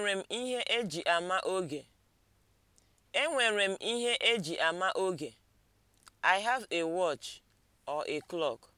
enwere m ihe eji ama oge. enwere m ihe eji ama oge. i have a watch or a clock.